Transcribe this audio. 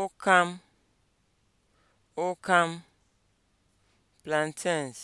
ụkam ụkam plantains